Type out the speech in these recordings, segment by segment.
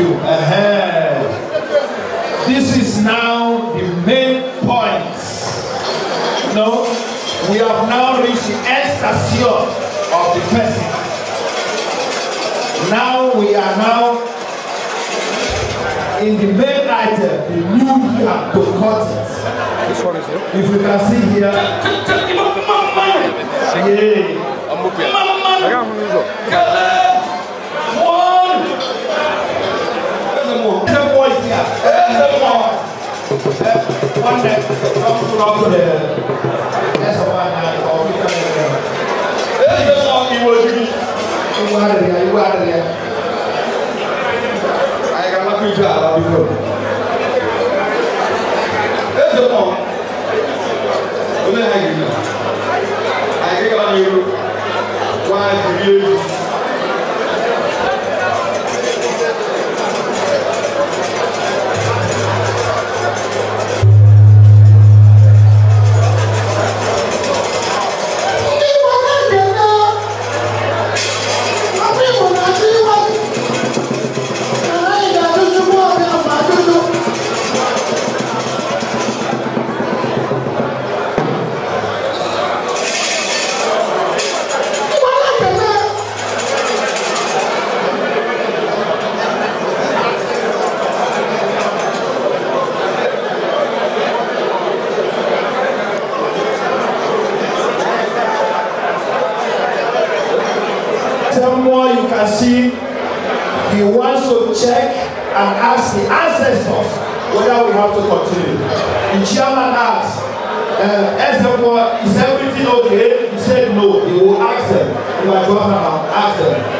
you. Uh-huh. This is now the main point. no, we have now reached the ecstasy of the person. Now we are now in the main item, the new year to cut one is it? If you can see here. Yeah. the one that comes to rock to the rest of our night or we can This is how he was used. You are there, you are there. I you check and ask the ancestors whether we have to continue. The chairman asked, uh, is everything okay? He said no. He will ask them. He I go ask them.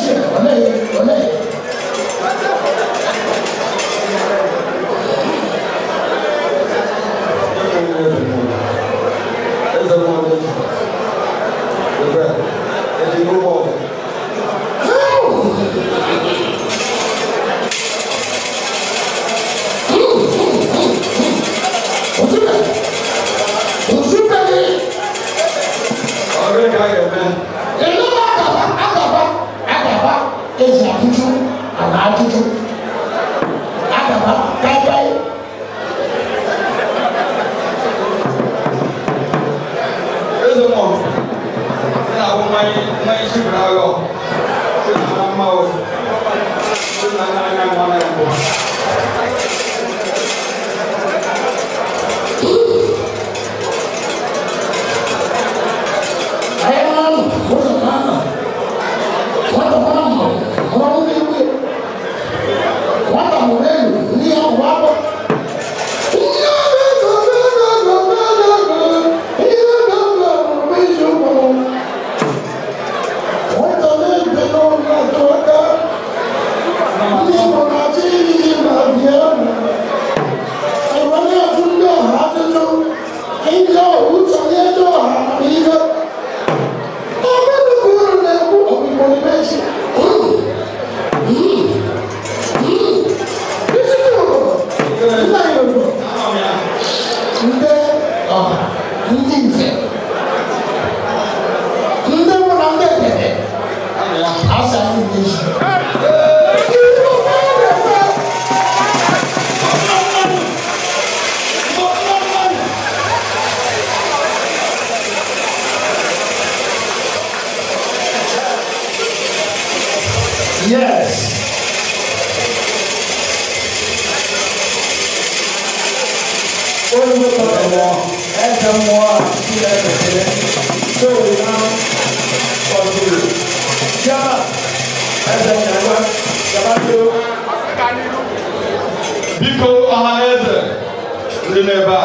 我妹，我妹。Senhor. Yes. Olùdókòwò ẹ̀wọ̀n ẹ̀jẹ̀ mọ́ àti ẹ̀rẹ̀kẹ̀rẹ̀ tó lè máa ọ̀dùn. Yàrá ẹ̀jẹ̀ ìyàwó yàrá tó. Biko ọhaneze ndị n'ebe a,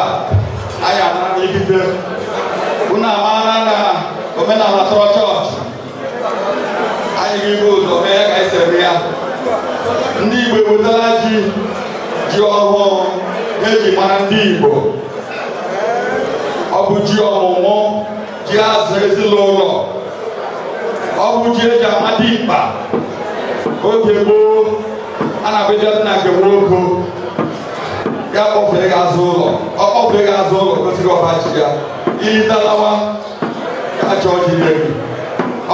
anyị anara n'ikike. Unu amaara na omenala tọrọ chọọchị. Anyị ga-ebu ụzọ mee esere ya ndị Igbo ewetala ji ji ọhụụ eji mara ndị Igbo ọ bụ ji ọmụmụ ji azụ ezinụlọ ọ bụ ji eji amadi mkpa oge gboo a na-abịa na nke nwoke ya kpọfere gị azụ ụlọ ọ kpọfere gị azụ ụlọ gosiri ọba ji ya iyi dalawa ka achọ ji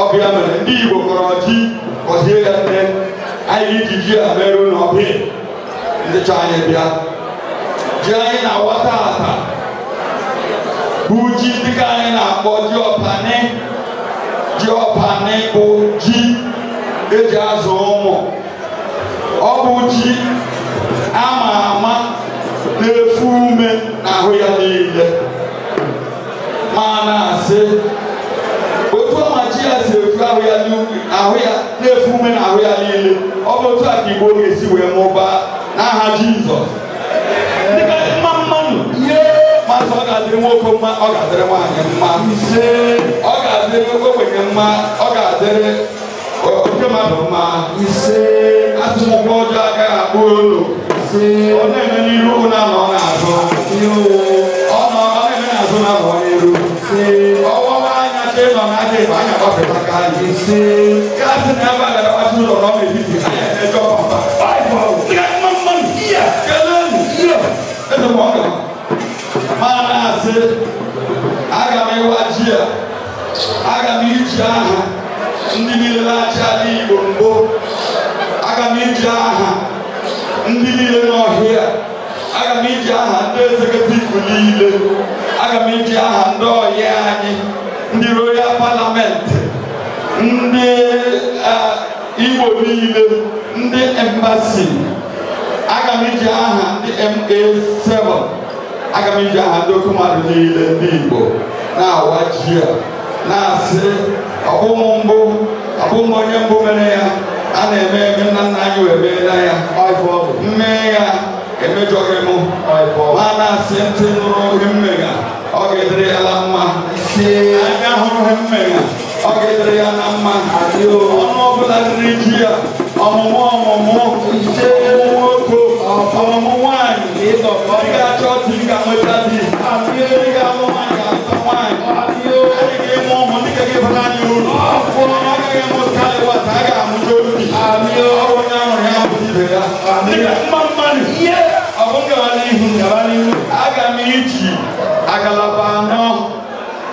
ọ bụ ya mere ndị Igbo kọrọ ji kɔsie ka tɛ ayi didi abɛro na ɔpe ndetwa ayɛ bia gye ayɛ na wɔtaata bugyi dika ayɛ na akpɔ gye ɔpane gye ɔpane ko gyi azɔ ɔmɔ ɔbu ama ama na efu ume na ahụ ya maa na asị. ahụ ya na-efu ume ahụ ya niile ọ bụ otu a ka igbo ga-esi wee mụbaa n'aha jizọs dịka ọ ga-adịrị nwoke mma ọ adịrị nwaanyị mma ọ ga-adịrị ogbenye mma ọ ga-adịrị oke mmadụ mma atụmụgwọ ọjọọ agaghị akpụ olu ọ na-eme n'iru na ọ na-azụ ọ na-eme n'azụ na ọ n'iru ebe nọ n'aja ebe anya gbapụtaka anyị si gasị na ebe a gara gbasị ụlọ ọrụ ọma ebiti anya na-ejọ papa mana asị aga m ịwa ji a aga m iji aha ndị niile na-achị ala igbo mbụ aga m iji aha ndị niile n'ọhịa aga m iji aha ndị ezeketivu niile aga m iji aha ndị ọhịa anyị ndị igbo niile ndị embasi aga m iji aha ndị ma7 aga m iji aha ndị oke mmadụ niile ndị igbo na-awa ji a na-asị ọbụmụ mbụ ọbụmụ onye mbụ mere ya a na-eme eme nna nna anyị wee meela ya mmee ya emejọghị mụ ma na-asị ntị nụrụ ohe mmega ọ ga-edere ala mma anya hụrụ he mmega ọ ga-edere ya na mma ọnụ ọbụla riri ji ya ọmụmụ ọmụmụ ise nwoke ọmụmụ nwanyị ị ga-achọ di ka nweta di ị ga-amụ nwanyị ga-achọ nwanyị ị ga-eme ụmụ ndị ga ga-ebara anyị uru ọ gaghị emụta ịwata a ga-amụta obi ọ bụ onye ahụrụ ya bụ ibe ya mma mmadụ ihe ọ bụ n'ihu ngara n'ihu aga m iji agalaba anọ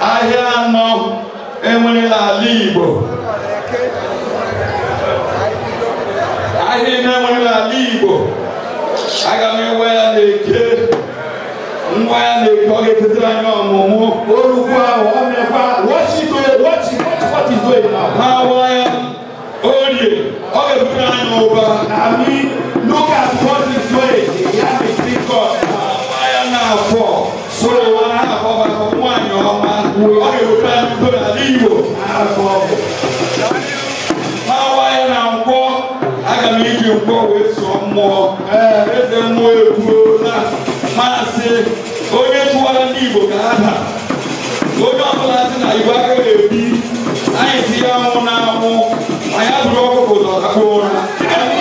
ahịa anọ onye nwere n'ala Igbo ahịa niile nwere n'ala Igbo aga m ewe ya na-eke nwa ya na-eke doing? ga-etetara anyị ọmụmụ What is ọ mekwa ha wa ya orie ọ ga-ebutere anyị ụba look at what is doing ya na-afọ ọ ga-eweta ndo n'ala Igbo n'awa ya na nkwọ aga m iji nkwọ wee sụọ mmụọ eze mmụọ egbuo na maasị onye tụwara ndị Igbo ka na onye ọbụla sị na Igbo agaghị ebi anyị si ya nwụ na anwụ anyị abụrụ ọkụkọ ụzọ akpụ ụra